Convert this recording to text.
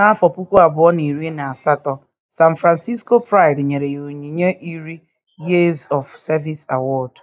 N'afọ puku abụọ na iri na asatọ, San Francisco Pride nyere ya onyinye iri Years of Service Award.